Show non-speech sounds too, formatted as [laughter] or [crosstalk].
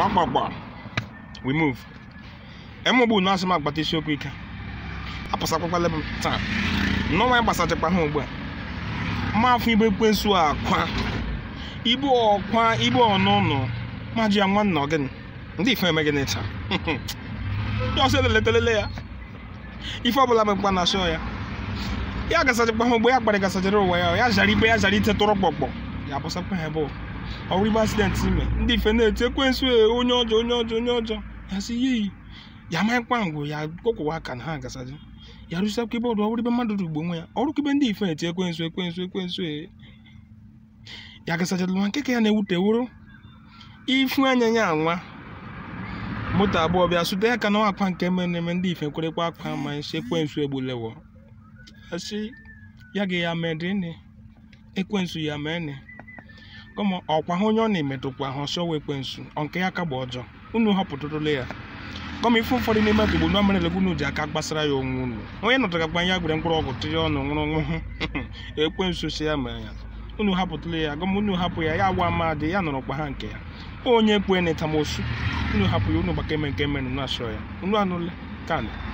Ramagba. We move. Emobu na asị m agbata isiokwu ike. Apụsakwala m taa. Nnọọ anyị gbasachakwa ha ugbu a. Mma afọ ibe kwensu akwa. Ibu ọkwa ibu ọnụnụ. Ma ji ya nwanna gịnị, Ndị ife eme gịnị taa? Ya [laughs] ọsọ telele ya. Ife ọbụla mekwa na shọ ya. Ya gasachakwa ha ugbu ya kparị gasachara ụwa ya. Ya zara ibe ya zara ite tụrụ kpọkpọ. Ya abụsakwa ha ebe ụwa. ọwụrụgbe asidenti ime ndị ife na-eti ekwensu e, onye ọjọ onye ọjọ onye ọjọ, ya sị ihe iyi ya amanyịkwa ngwụ ya kpọkwụwa aka na ha agasazi ya rụsakwa ebe ọdụ ibe mmadụ dugbo nwe ya ibe ndị ife na-eti ekwensu ekwensu e. ya gasachara nwa nke ya na-ewute wuru, ifu anya ya anwa moto abụọ bịa sute ya ka na akwa nke mere eme ndị ife kwerekwa akwa ma isi e ekwensu egbulewo asị ya ga ya medini ekwensu ya mee mene ụmụ ọkwa ha onye ọ na-emetụkwa ha ọsọ wee ekwensu nke ya ka gba ọjọọ unu họpụtụrụla ya kọma ifu ụfọdụ n'ime ka igbo mere egwu unu ji aka gbasara ya onwe unu onye nọtara gba ya gwere mkpụrụ ọgwụ tiri ọnụ nwụrụ nwụhụ [laughs] ekwensu si ya mere ya unu hapụtụla ya gọma unu hapụ ya ya agwa amadị ya nọrọ kwa ha nke ya onye kwe na etamosu unu hapụ ya unu gbaka eme nke mere na asọ ya unu anụla ka